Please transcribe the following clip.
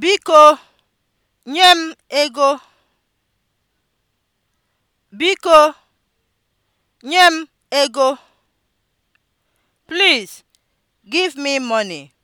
Biko nye m ego. Biko nye m ego. Please give me money.